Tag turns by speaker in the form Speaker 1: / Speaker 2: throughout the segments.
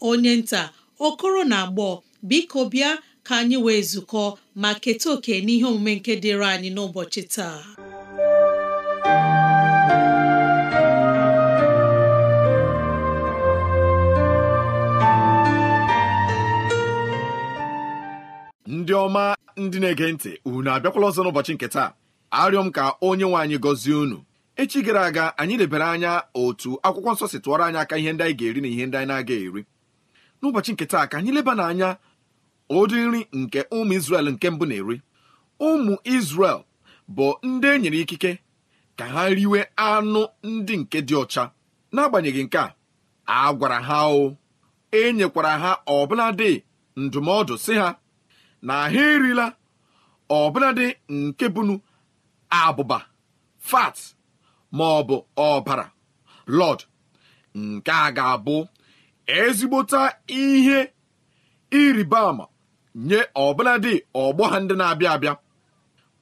Speaker 1: onye nta okoro na agbọ biko bịa ka anyị wee zukọ ma keta oke n'ihe omume nke dịịrị anyị n'ụbọchị taa
Speaker 2: ndị ọma ndị na-ege ntị unu abịakwala ọzọ n'ụbọchị nke taa arịọ m ka onye nwe anyị gọzie unu echi gara aga anyị lebere anya otu akwụkwọ nsọ si tụọrọ anyị aka ihe ndị anyị ga-eri na ihe ndị anyị na-aga eri n'ụbọchị nke taa ka anyị leba n'anya ụdị nri nke ụmụ Izrel nke mbụ na-eri ụmụ Izrel bụ ndị e nyere ikike ka ha riwe anụ ndị nke dị ọcha n'agbanyeghị nke a a gwara ha o e nyekwara ha ọbụladị ndụmọdụ si ha na ha erila ọbụladị nke bụnu abụba fat maọbụ ọbara lọd nke a ga-abụ ezigbota ihe ịrịba ama nye ọbụladị ọgbọ ha ndị na-abịa abịa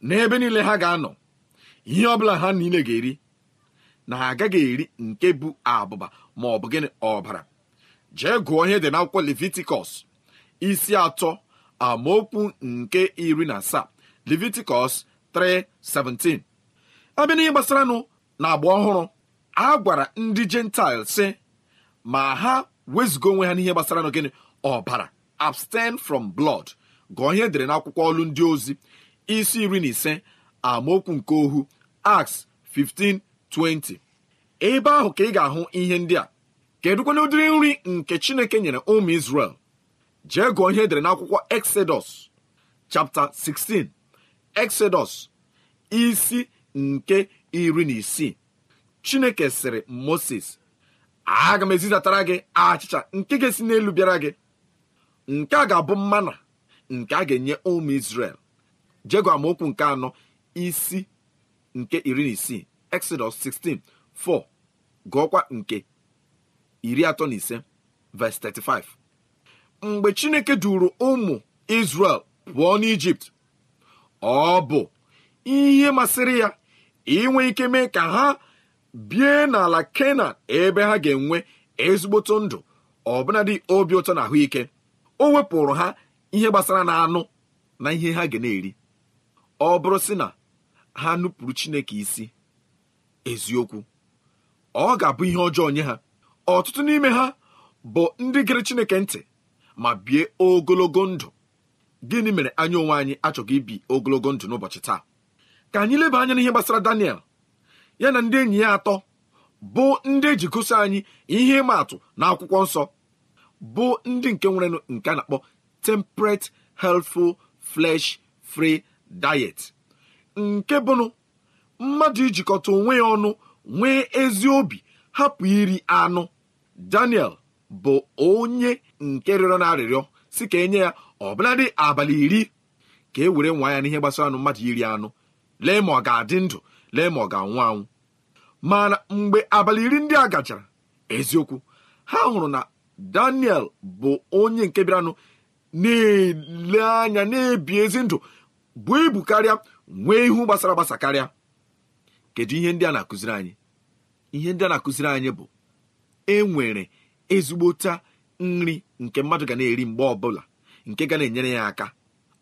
Speaker 2: n'ebe niile ha ga-anọ ihe ọbụla ha niile ga-eri na ha agaghị eri nke bụ abụba ma ọ bụ gịnị ọbara jee gụọ ihe dị n'akwụkwọ Levitikọs isi atọ amaokwu nke iri na asaa Levitikọs 3:17 abịa n'ihe nụ na agba ọhụrụ a gwara ndị Jentaịl sị ma ha wezụga onwe ha n'ihe gbasara n'ogene ọbara abstain from blood gụọ ihe e dere n'akwụkwọ ọlụ ndị ozi isi iri na ise amaokwu nke ohu Acts 15:20 ebe ahụ ka ị ga-ahụ ihe ndị a kedụkwana ụdịrị nri nke Chineke nyere ụmụ Israel jee gụọ ihe edere n'akwụkwọ Exodus chapta 16 Exodus isi nke iri na isii Chineke sịrị Moses aga m ezizatara gị achịcha nke ga-esi n'elu bịara gị nke a ga-abụ mmana nke a ga-enye ụmụ Izrel jegụ okwu nke anọ isi nke iri na isii Exodus 16:4 gụọkwa nke iri atọ na ise 35 mgbe Chineke duru ụmụ isrel pụọ n'Ijipt ọ bụ ihe masịrị ya inwe ike mee ka ha bie n'ala kenan ebe ha ga-enwe ezigboto ndụ ọbụnadị obi ụtọ na ahụike o wepụrụ ha ihe gbasara na anụ na ihe ha ga na-eri ọ bụrụ sị na ha nupụrụ chineke isi eziokwu ọ ga-abụ ihe ọjọọ nye ha ọtụtụ n'ime ha bụ ndị gere chineke ntị ma bie ogologo ndụ gịnị mere anya onwe anyị achọghị ibi ogologo ndụ n'ụbọchị taa ka anyị leba anya n'ihe gbasara Daniel ya na ndị enyi ya atọ bụ ndị ejikọso anyị ihe ịma atụ na akwụkwọ nsọ bụ ndị nke nwere nke a na-akpọ temperate healthful flesh free diet nke bụnụ mmadụ ijikọta onwe ya ọnụ nwee ezi obi hapụ iri anụ Daniel bụ onye nke rịọrọ na arịrịọ si ka enye ya ọbụladị abalị iri ka e were nwa ya n'ihe gbasara anụ mmadụ iri anụ lee ma ọ ga-adị ndụ lee ma ọ ga-anwụ anwụ mana mgbe abalị iri ndị a gachara eziokwu ha hụrụ na daniel bụ onye nke bịaranụ na-ele anya na-ebi ezi ndụ bụ ibu karịa nwee ihu gbasara gbasa karịa kedu ihe ndị a na-akụziri anyị ihe ndị a na-akụziri anyị bụ enwere ezigbota nri nke mmadụ ga na-eri mgbe ọbụla nke ga na-enyere ya aka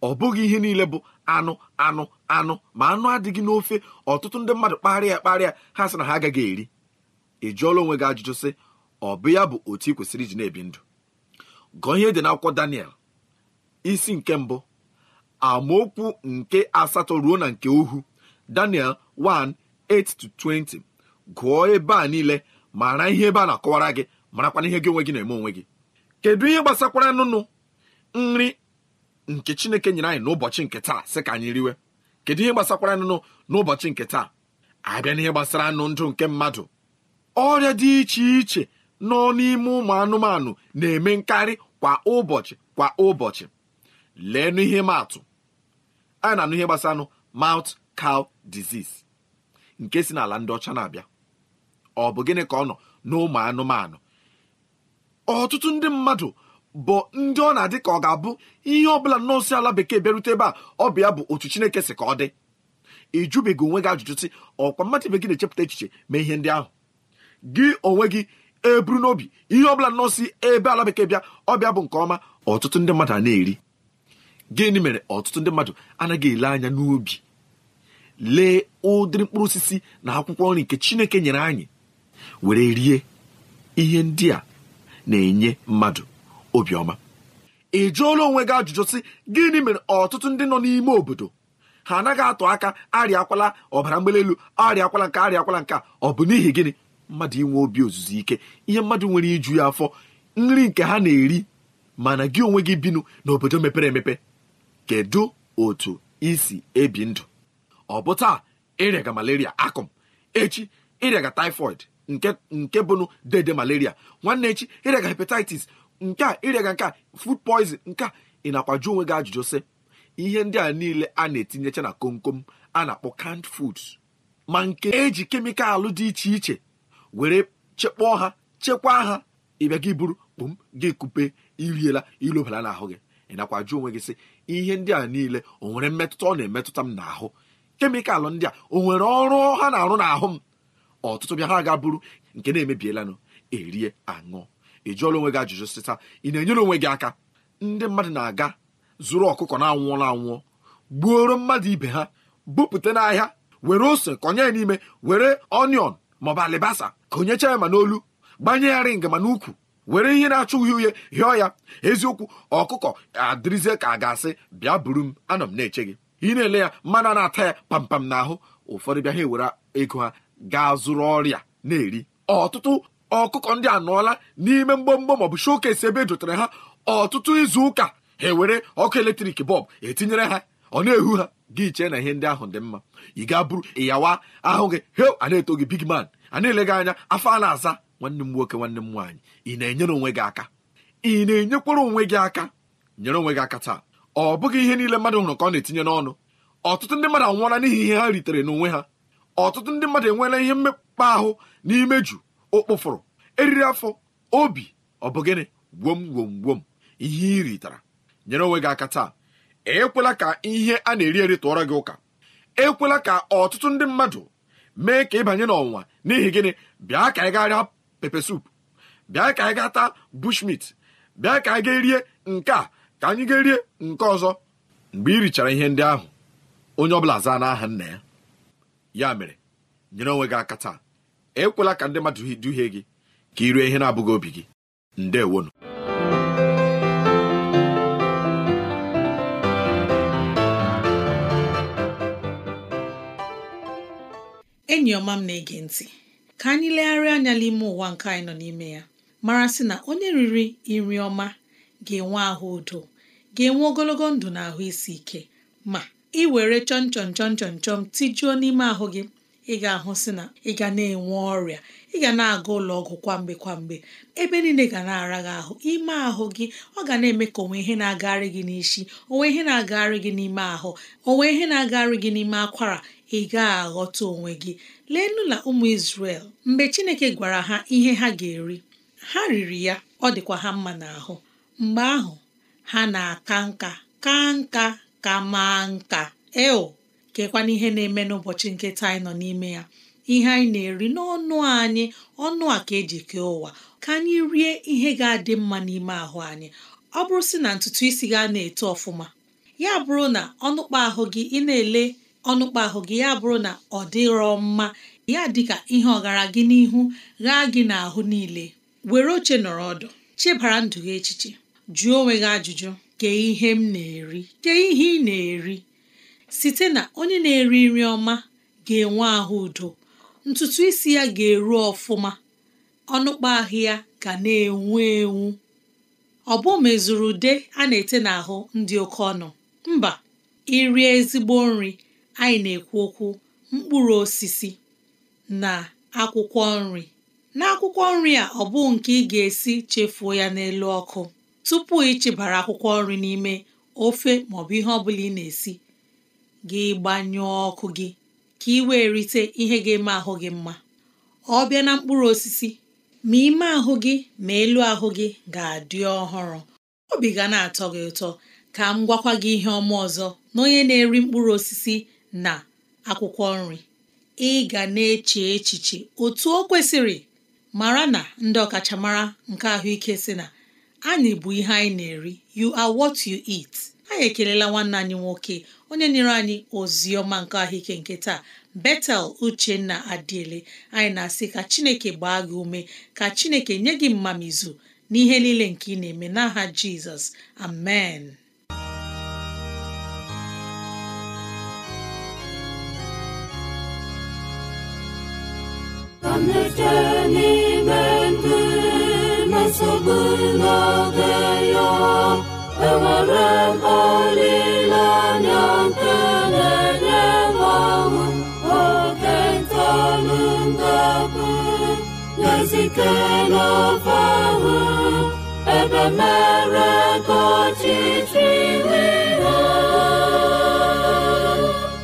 Speaker 2: ọ bụghị ihe niile bụ anụ anụ anụ ma anụ adịghị n'ofe ọtụtụ ndị mmadụ kparịa kparịa ha sị na ha agaghị eri ị jụọla onwe gị ajụjụ sị ọ bụ ya bụ otu ị kwesịrị iji na-ebi ndụ gụọ ihe dị n'akwụkwọ Daniel isi nke mbụ amaokwu nke asatọ ruo na nke uhu Daniel 1:8-20 gụọ ebe a niile mara ihe ebe a na-akọwara gị marakwana ihe gị onwe gị na-eme onwe gị kedu ihe gbasakwara nụnụ nri nke chineke nyere anyị n'ụbọchị nke taa sị ka anyị riwe kedu ihe gbasakwara anụ n'ụbọchị nke taa abịa n'ihe gbasara anụ ndụ nke mmadụ ọrịa dị iche iche nọ n'ime ụmụ anụmanụ na-eme nkarị kwa ụbọchị kwa ụbọchị lee n'ihe maatụ a na-anụ ihe anụ mouth cow disease nke si n'ala ndị ọcha na-abịa ọ bụ gịnị ka ọ nọ n'ụmụ anụmanụ ọtụtụ ndị mmadụ bụ ndị ọ na-adị ka ọ ga-abụ ihe ọbụla nọọsụ ala bekee bịarute ebe a ọ bụ bụ otu Chineke si ka ọ dị ịjụbeghị onwe gị ajụjụ si ọkwa mmadụ ibe gị na-echepụta echiche ma ihe ndị ahụ gị onwe gị eburu n'obi ihe ọbụla nọọsụ ebe ala bekee bịa ọbịa bụ nke ọma ọtụtụ ndị mmadụ a na-eri gịnị mere ọtụtụ ndị mmadụ anaghị ele anya n'obi lee ụdịrị mkpụrụ osisi na akwụkwọ nri nke Chineke nyere anyị were rie ihe ndị a na-enye mmadụ obiọma ị jụọla onwe gị ajụjụ sị gịnị mere ọtụtụ ndị nọ n'ime obodo ha anaghị atụ aka arịakwala ọbara mgbali elu arịakwala nke arịakwala nke ọ bụ n'ihi gịnị mmadụ inwe obi ozuzu ike ihe mmadụ nwere iju ya afọ nri nke ha na-eri mana gị onwe gị binu n'obodo mepere emepe kedu otu isi ebi ndụ ọ bụ taa ịrịaga malaria akụm echi ịrịaga typhoid nke bụnụ dede malaria nwanne echi ịrịaga hepatitis nke a ịrịaga nke a food poison nke a ị na-akwaju onwe gị ajụjụ sị ihe ndị a niile a na-etinyecha na komkom a na-akpọ kand foods ma nke eji kemịkalụ dị iche iche were chekpọọ ha chekwaa ha ịbịa gị buru kpụm gị kupe iriela ilobala n'ahụ gị ị nakwa onwe gị sị ihe ndị a niile o nwere mmetụta ọ na-emetụta m n'ahụ kemịkalụ ndị a o nwere ọrụ ha na-arụ n'ahụ m ọtụtụ bịa ha ga buru nke na-emebiela erie aṅụ ị jụọla onwe gị ajụjụ sịta ị na-enyere onwe gị aka ndị mmadụ na-aga zụrụ ọkụkọ na-anwụọla anwụọ gbuoro mmadụ ibe ha bupụta n'ahịa were ose konye ya n'ime were onion maọbụ alibasa konyecha ya ma n'olu gbanye ya ring ma n'ukwu were ihe na achọ uhie uhie hịọ ya eziokwu ọkụkọ adịrịzie ka a ga-asị bịa buru m anọ m na-eche gị ị na-ele ya mmanụ na-ata ya pampam n'ahụ ụfọdụ bịa ha ewere ego ha gaa zụrụ ọrịa na-eri ọtụtụ ọkụkọ ndị a nọọla n'ime mgbọmgbọ maọbụ showcase ebe ejotara ha ọtụtụ izu ụka ha ewere ọkụ eletrik bọb etinyere ha ọ na-ehu ha gị chee na ihe ndị ahụ dị mma ị ga bụrụ ịyawa ahụ gị he a na-eto gị big man a na-ele gị anya afọ a na-aza nwanne m nwoke nwanne m nwaanyị ị na-enyere onwe gị aka ị na-enyekwara onwe gị aka nyere onwe gị aka taa ọ bụghị ihe niile mmadụ hụrụ ka ọ na-etinye n'ọnụ ọtụtụ ndị mmadụ anwụọla n'ihi ihe ha ritere n'onwe ha ọtụtụ ndị mmadụ enweela ihe mmekpa ahụ n'ime ụkpụfụrụ eriri afọ obi ọ bụ gịnị gwom gwom gwom ihe ị ritara nyere onwe gị aka taa ekwela ka ihe a na-eri eri tụọrọ gị ụka ekwela ka ọtụtụ ndị mmadụ mee ka ịbanye n'ọnwa n'ihi gịnị bịa ka anyị gaa rịa pepe sup bịa ka anyị gaa taa bushmit bịa ka anyị gaa rie nke a ka anyị gaa rie nke ọzọ mgbe ị richara ihe ndị ahụ onye ọbụla zaa n'aha nna ya ya mere nyere onwe gị aka taa ekwela ka ndị mmadụ duhie gị ka ị rue ihe na-abụghị obi gị ndewonu
Speaker 1: enyi ọma m na-ege ntị ka anyị legharịa anya n'ime ụwa nke anyị nọ n'ime ya mara sị na onye riri nri ọma ga-enwe ahụ udo ga-enwe ogologo ndụ na ahụ isi ike ma ị were chọn tijuo n'ime ahụ gị ị ga-ahụ si na ị ga na-enwe ọrịa ị ga na-aga ụlọ ọgwụ kwamgbe kwamgbe ebe niile ga na-ara gị ahụ ime ahụ gị ọ ga na-eme ka onwe ihe na-agagharị gị n'isi onwe ihe na-agagharị gị n'ime ahụ onwe ihe na-agagharị gị n'ime akwara ị ga-aghọta onwe gị leenụ na ụmụ Izrel mgbe Chineke gwara ha ihe ha ga-eri ha riri ya ọ dịkwa ha mma n'ahụ mgbe ahụ ha na-aka nka ka nka ka maa nka eo kekwana ihe na-eme n'ụbọchị nke taa anyị nọ n'ime ya ihe anyị na-eri n'ọnụ anyị ọnụ a ka eji kee ụwa ka anyị rie ihe ga-adị mma n'ime ahụ anyị ọ bụrụ sị na ntutu isi gị na-eto ọfụma ya bụrụ na ọnụkpa ahụ gị ị na-ele ọnụkpa ahụ gị ya bụrụ na ọ dịrọ mma ya dịka ihe ọgara gị n'ihu ghaa gị n'ahụ niile were oche nọrọ ọdụ chebara ndụ gị echiche jụọ onwe gị ajụjụ kee ihe m na-eri kee ihe ị na-eri site na onye na-eri nri ọma ga-enwe ahụ udo ntutu isi ya ga-eru ọfụma ọnụkpa ahụ ya ga na-enwu enwu ọ bụ mezuru ude a na-ete n'ahụ ndị oke ọnụ mba irie ezigbo nri anyị na-ekwu okwu mkpụrụ osisi na akwụkwọ nri na akwụkwọ nri a ọ bụ nke ị ga-esi chefuo ya n'elu ọkụ tupu ịchịbara akwụkwọ nri n'ime ofe maọbụ ihe ọ bụla ị na-esi gị gbanyụọ ọkụ gị ka ị wee rite ihe ga-eme ahụ gị mma ọ bịa na mkpụrụ osisi ma ime ahụ gị ma elu ahụ gị ga-adị ọhụrụ obi ga na-atọ gị ụtọ ka m gwakwa gị ihe ọma ọzọ na onye na-eri mkpụrụ osisi na akwụkwọ nri ị ga na-eche echiche otu o kwesịrị mara na ndị ọkachamara nke ahụike sị na anyị bụ ihe anyị na-eri you are what you eat anyị ekelela nwanne anyị nwoke onye nyere anyị ozi ọma nke ahụike nke taa betel uchenna adịele anyị na-asị ka chineke gbaa gị ume ka chineke nye gị mmamizu n'ihe niile nke ị na-eme n'aha jizọs amen
Speaker 3: abụ na-ezitela ọbahụ ebe mere ego ọchịchị iwe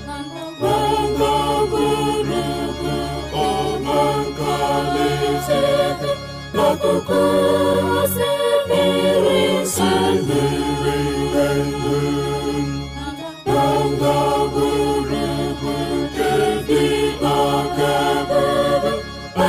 Speaker 3: ha gbagagburugburu ọma nke alaeze n'akụkụ osimiri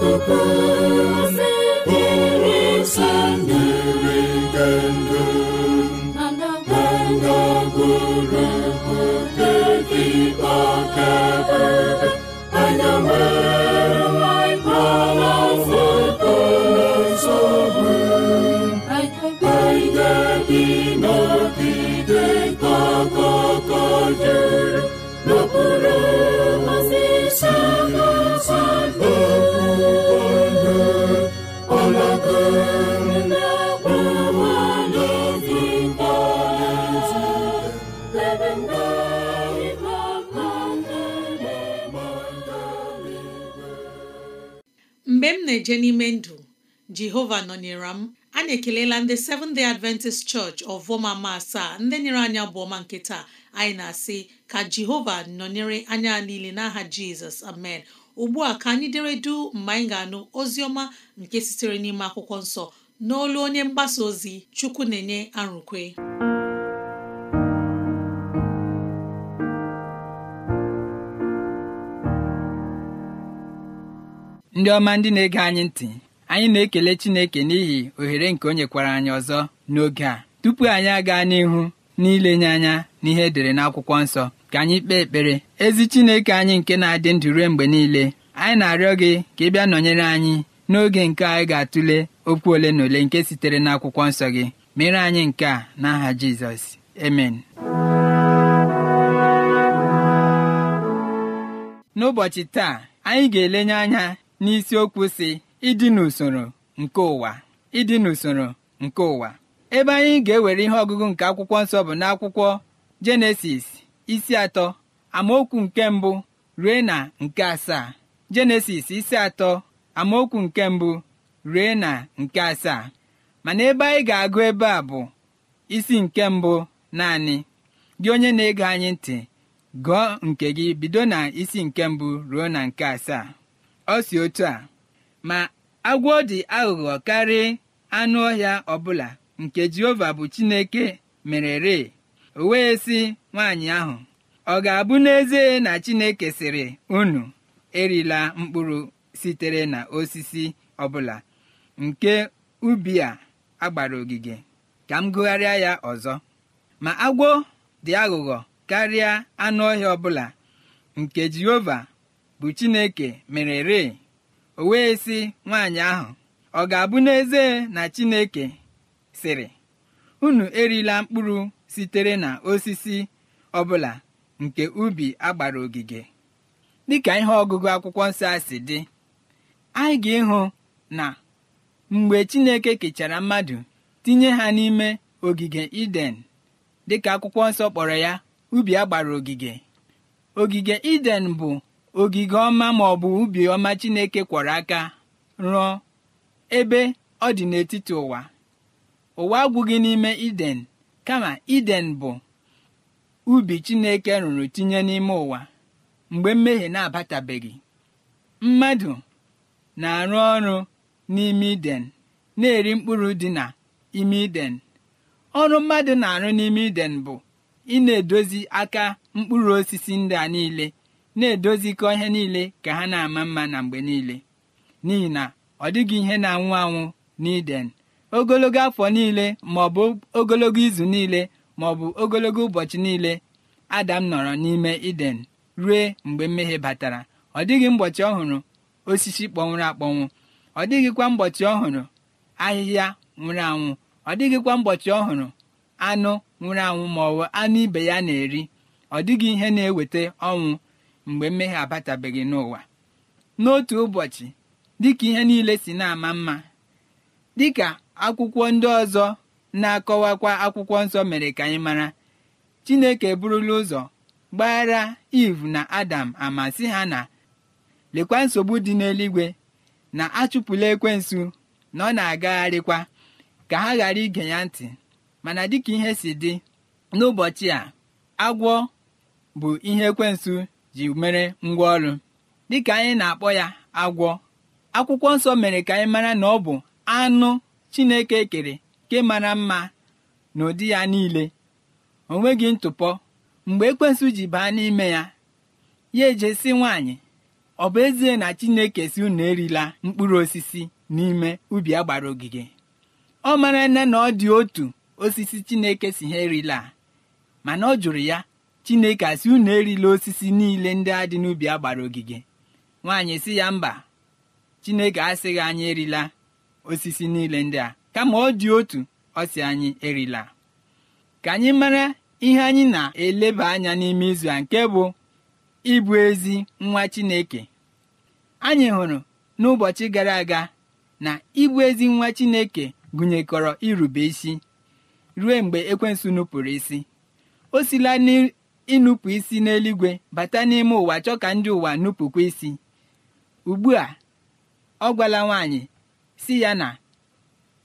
Speaker 3: Coco.
Speaker 1: na n'ime ndụ jehova nọnyere m anyị ekelela ndị seven Day Adventist Church ma asaa ndị nyere anya ọma nke taa anyị na-asị ka jehova nọnyere anya niile n'aha jizọs amen ugbu a ka anyị dere du mgbe anyị ga-anụ ozi ọma nke sitere n'ime akwụkwọ nsọ n'olu onye mgbasa ozi chukwu na-enye arụkwe
Speaker 4: ndị ọma ndị na-ege anyị ntị anyị na-ekele Chineke n'ihi ohere nke o nyekwara anyị ọzọ n'oge a tupu anyị agaa n'ihu n'ilenye anya n'ihe edere n'akwụkwọ nsọ ka anyị kpee ekpere ezi Chineke anyị nke na-adị ndụ ruo mgbe niile anyị na-arịọ gị ka ị bịa nọnyere anyị n'oge nke anyị ga-atụle okwu ole na ole nke sitere n'akwụkwọ nsọ gị mere anyị nke a n'aha Jizọs emen n'ụbọchị taa anyị ga-elenye anya n'isiokwu si ịdị n'usoro nke ụwa ịdị n'usoro nke ụwa ebe anyị ga-ewere ihe ọgụgụ nke akwụkwọ nsọ bụ n'akwụkwọ jenesis isi atọ amaokwu nke mbụ rue na nke asaa jenesis isi atọ amaokwu nke mbụ rue na nke asaa mana ebe anyị ga-agụ ebe a bụ isi nke mbụ naanị gị onye na-ege anyị ntị gụọ nke gị bido na isi nke mbụ ruo na nke asaa ọ si otu a ma agwọ dị aghụghọ karịa anụ ọhịa ọbụla nke Jehova bụ Chineke mere ree o wee sị nwaanyị ahụ ọ ga-abụ n'ezie na Chineke sịrị unu erila mkpụrụ sitere na osisi ọbụla nke ubi a agbara ogige ka m gụgharịa ya ọzọ ma agwọ dị aghụghọ karịa anụ ọhịa ọbụla nke Jehova bụ Chineke mere ree o wee sị nwaanyị ahụ ọ ga-abụ n'ezie na Chineke sịrị unu erila mkpụrụ sitere na osisi ọbụla nke ubi agbara ogige dịka ihe ọgụgụ akwụkwọ nsọ a si dị anyị ga-ịhụ na mgbe Chineke kechara mmadụ tinye ha n'ime ogige Iden dịka akwụkwọ nsọ kpọrọ ya ubi agbara ogige ogige Iden bụ ogige ọma ma ọ bụ ubi ọma chineke kwọrọ aka rụọ ebe ọ dị n'etiti ụwa ụwa agwụghị n'ime iden kama iden bụ ubi chineke rụrụ tinye n'ime ụwa mgbe mmehie na-abatabeghị mmadụ na-arụ ọrụ n'ime iden na-eri mkpụrụ dị na ime iden ọrụ mmadụ na-arụ n'ime iden bụ ị na-edozi aka mkpụrụ osisi ndị a niile na-edozikọ ihe niile ka ha na-ama mma na mgbe niile n'ihi na ọ dịghị ihe na-anwụ anwụ n'iden ogologo afọ niile ma ọ bụ ogologo izu niile ma ọ bụ ogologo ụbọchị niile adam nọrọ n'ime iden rue mgbe mmehie batara ọ dịghị mgbochi ọhụrụ osisi kpọnwụrụ akpọnwụ ọ dịghịkwa mgbochi ọhụrụ ahịhịa nwụrụ anwụ ọ dịghịkwa mgbochi ọhụrụ anụ nwụrụ anwụ ma ọ bụ anụ ibe ya na-eri ọ dịghị ihe na-eweta ọnwụ mgbe mmehie abatabeghị n'ụwa n'otu ụbọchị dịka ihe niile si na-ama mma dịka akwụkwọ ndị ọzọ na-akọwakwa akwụkwọ nsọ mere ka anyị mara Chineke burula ụzọ gbaghara Iv na Adam ama si ha na lekwa nsogbu dị n'eluigwe na achụpụla ekwensụ na ọ na-agagharịkwa ka ha ghara ige ya ntị mana dịka ihe si dị n'ụbọchị a agwọ bụ ihe ekwensụ ji mere ngwa ngwaọrụ dịka anyị na-akpọ ya agwọ akwụkwọ nsọ mere ka anyị mara na ọ bụ anụ chineke kere nke mara mma na ụdị ya niile o nweghị ntụpọ mgbe ekwensu ji baa n'ime ya ya ejesi nwaanyị ọ bụ ezie na chineke si unu erila mkpụrụ osisi n'ime ubi a gbara ogige ọ mara nne na ọ dị otu osisi chineke si ha erila mana ọ jụrụ ya chineke asị unu erila osisi niile ndị a dị n'ubi a gbara ogige nwaanyị si ya mba chineke asịghị anyị erila osisi niile ndị a kama ọ dị otu ọ sị anyị erila ka anyị mara ihe anyị na-eleba anya n'ime izu a nke bụ ịbụ ezi nwa chineke anyị hụrụ n'ụbọchị gara aga na ịbụ ezi nwa chineke gụnyekọrọ irube isi ruo mgbe ekwensu nupụrụ isi o sila ịnụpụ isi n'eluigwe bata n'ime ụwa chọọ ka ndị ụwa nupụkwa isi ugbu a ọ gwala nwaanyị si ya na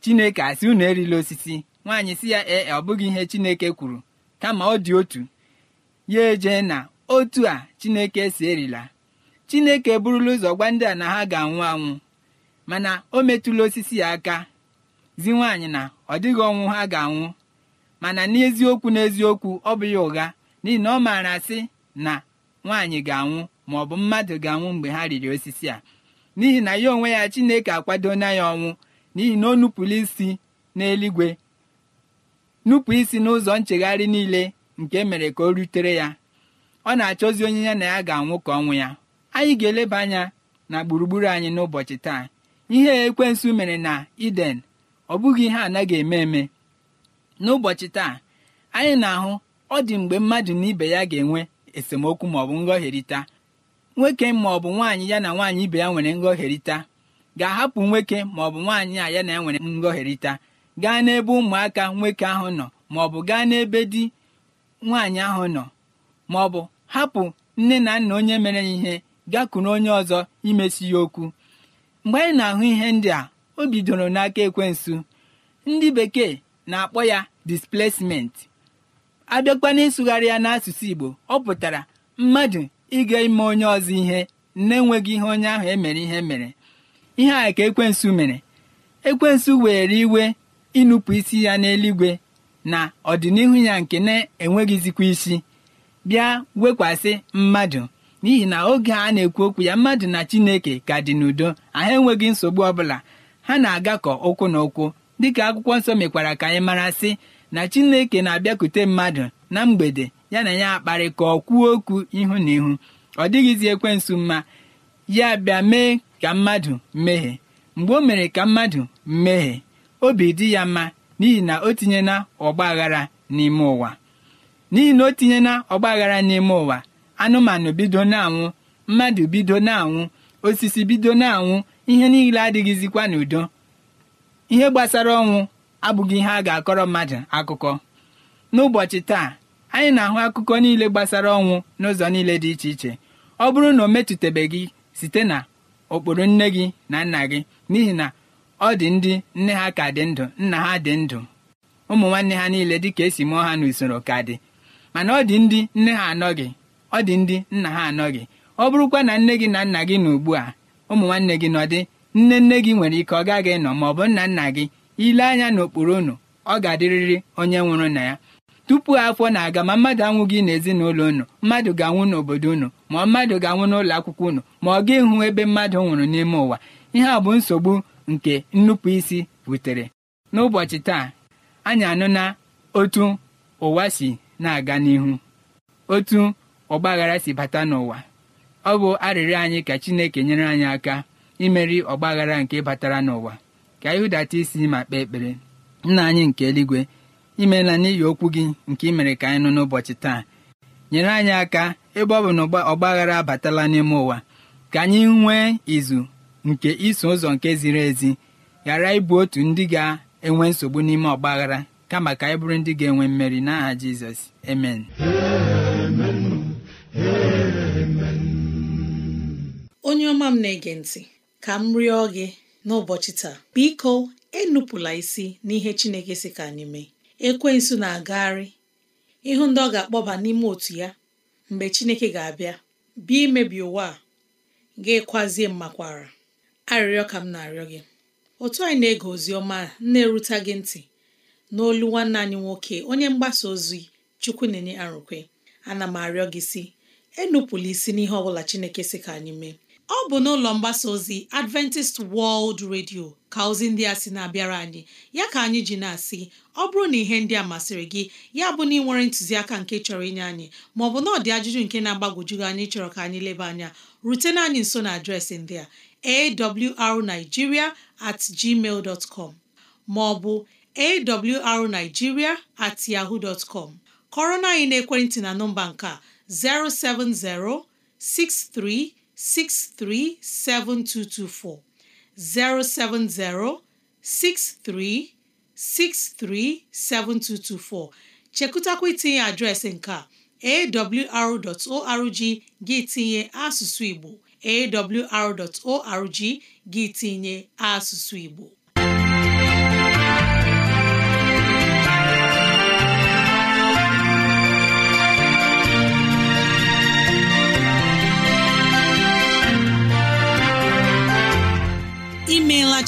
Speaker 4: chineke asị unu erila osisi nwaanyị si ya ee ọ bụghị ihe chineke kwuru kama ọ dị otu ya eje na otu a chineke si erila chineke burula ụzọ gwa ndị a na ha ga-anwụ anwụ mana o metụla osisi ya aka zi nwaanyị na ọ dịghị ọnwụ ha ga-anwụ mana n'eziokwu n'eziokwu ọ bụ ya ụgha n'ihi na ọ maara sị na nwaanyị ga-anwụ ma ọ bụ mmadụ ga-anwụ mgbe ha riri osisi a n'ihi na ya onwe ya Chineke akwadona ya ọnwụ n'ihi na ọ nupụrụ isi n'eluigwe nupụ isi n'ụzọ nchegharị niile nke e mere ka o rutere ya ọ na-achọzi onye ya na ya ga-anwụ ka ọnwụ ya anyị ga-eleba anya na gburugburu anyị n'ụbọchị taa ihe ekwensu mere na Eden ọ bụghị ihe anaghị eme eme n'ụbọchị taa anyị na-ahụ ọ dị mgbe mmadụ na ibe ya ga-enwe esemokwu maọbụ ngọherịta nwoke maọbụ nwaanyị ya na nwaanyị ibe ya nwere nghọherita ga-ahapụ nwoke maọbụ nwaanyị a ya na ya nwere nghọherita gaa n'ebe ụmụaka nwoke ahụ nọ maọbụ gaa n'ebe di nwaanyị ahụ nọ maọbụ hapụ nne na nna onye mere ya ihe gakwuru onye ọzọ imesi ya okwu mgbe anyị na-ahụ ihe ndị a o bidoro n'aka ekwensu ndị bekee na-akpọ ya displacement abịakwa n'ịsụgharị ya n'asụsụ Igbo ọ pụtara mmadụ ịga ime onye ọzọ ihe na-enweghị ihe onye ahụ emere ihe mere ihe a ka ekwensu mere ekwensu were iwe ịnụpụ isi ya n'eluigwe na ọdịnihu ya nke na-enweghịzikwa isi bịa wekwasị mmadụ n'ihi na oge a na-ekwu okwu ya mmadụ na Chineke ka dị n'udo Aha enweghị nsogbu ọbụla ha na-agakọ ụkwụ na ụkwụ dịka akwụkwọ nsọ mekwara ka anyị mara sị na chineke na-abịakute mmadụ na mgbede ya na ya akparị ka ọ kwuo okwu ihu na ihu ọ dịghịzi ekwensu mma ya bịa mee ka mmadụ mmehie mgbe o mere ka mmadụ mmehie obi dị ya mma n'ihi na o tinyela ọgba n'ime ụwa n'ihi na o ọgba n'ime ụwa anụmanụ bido na-anwụ mmadụ bido na-anwụ osisi bido na-anwụ ihe niile adịghịzikwa n'udo ihe gbasara ọnwụ abụghị ihe a ga-akọrọ mmadụ akụkọ n'ụbọchị taa anyị na-ahụ akụkọ niile gbasara ọnwụ n'ụzọ niile dị iche iche ọ bụrụ na o metụtabeghị site na ụkpụrụ nne gị na nna gị n'ihi na ọ dị ndị nne ha ka dị ndụ nna ha dị ndụ ụmụ nwanne ha niile dị ka esi mụọ ha n'usoro ka dị mana ọ dị ndị nne ha anọghị ọ dị ndị nna ha anọghị ọ bụrụkwa na nne gị na nna gị na ugbu a ụmụ nwanne gị nọ dị nne nne gị nwere ike ọ gaghị nọ ma ọ bụ nna nna gị ile anya n'okpuru unu ọ ga-adịrịrị onye nwụrụ na ya tupu afọ na-aga ma mmadụ anwụghị n'ezinụlọ unu mmadụ ga-anwụ n'obodo unu ma mmadụ ga-anwụ n'ụlọ akwụkwọ unu ma ọ ga ịhụ ebe mmadụ nwụrụ n'ime ụwa ihe a bụ nsogbu nke nnupụ isi butere n'ụbọchị taa anyị anụ na otu ụwa si na-aga n'ihu otu ọgbaghara si bata n'ụwa ọ bụ arịrịọ anyị ka Chineke nyere anyị aka imeri ọgbaghara nke batara n'ụwa ka anyị hụdata isi e ma kpee ekpere nna anyị nke eluigwe imeela n'ihi okwu gị nke imere ka anyị nụ n'ụbọchị taa nyere anyị aka ebe ọ bụ na ọgba abatala n'ime ụwa ka anyị nwee izu nke iso ụzọ nke ziri ezi ghara ịbụ otu ndị ga-enwe nsogbu n'ime ọgba aghara kama ka anyị bụrụ ndị ga-enwe mmeri n'aha Jizọs emen
Speaker 1: onye ọma m na-ege ntị ka m rịọ gị n'ụbọchị taa biko enupụla isi n'ihe Chineke si ka anyị mee ekwensu na-agagharị ịhụ ndị ọ ga-akpọba n'ime otu ya mgbe Chineke ga-abịa bịa imebi ụwa a ga-ekwazie mmakwara arịrịọ ka m na-arịọ gị otu anyị na-ege ozi ọma na-erute gị ntị n'olu nwanne anyị nwoke onye mgbasa ozi chukwu na-enye arụkwe ana m arịọ gị si enupụla isi n'ihe ọ bụla Chineke si ka anyị mee ọ bụ n'ụlọ mgbasa ozi Adventist World Radio ka ozi ndị a sị na-abịara anyị ya ka anyị ji na-asị ọ bụrụ na ihe ndị a masịrị gị ya bụ na ị nwere ntụziaka nke chọrọ inye anyị maọbụ na ọdị ajụjụ nke na agbagojugị anyị chọrọ ka anyị leba anya rutena anyị nso na adreesị ndị a arigiria at gmail dot com maọbụ awrnigeria at yahoo dot com kọrọ na anyị n'ekwentị na nọmba nke a 070 63 637224 070 63637224 chekụtakwa itinye adreesị nke a awr.org gị tinye asụsụ Igbo awr.org gị tinye asụsụ Igbo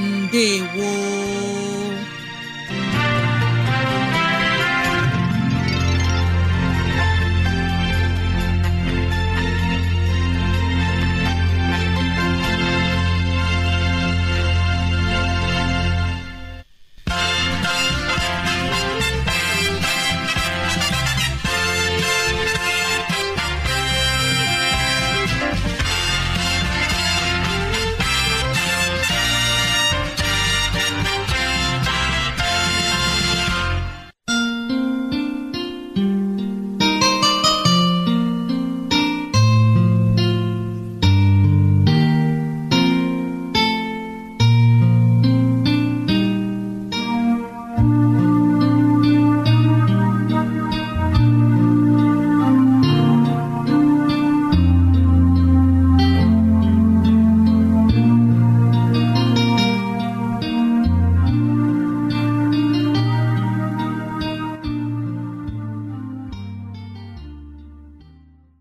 Speaker 1: ndewo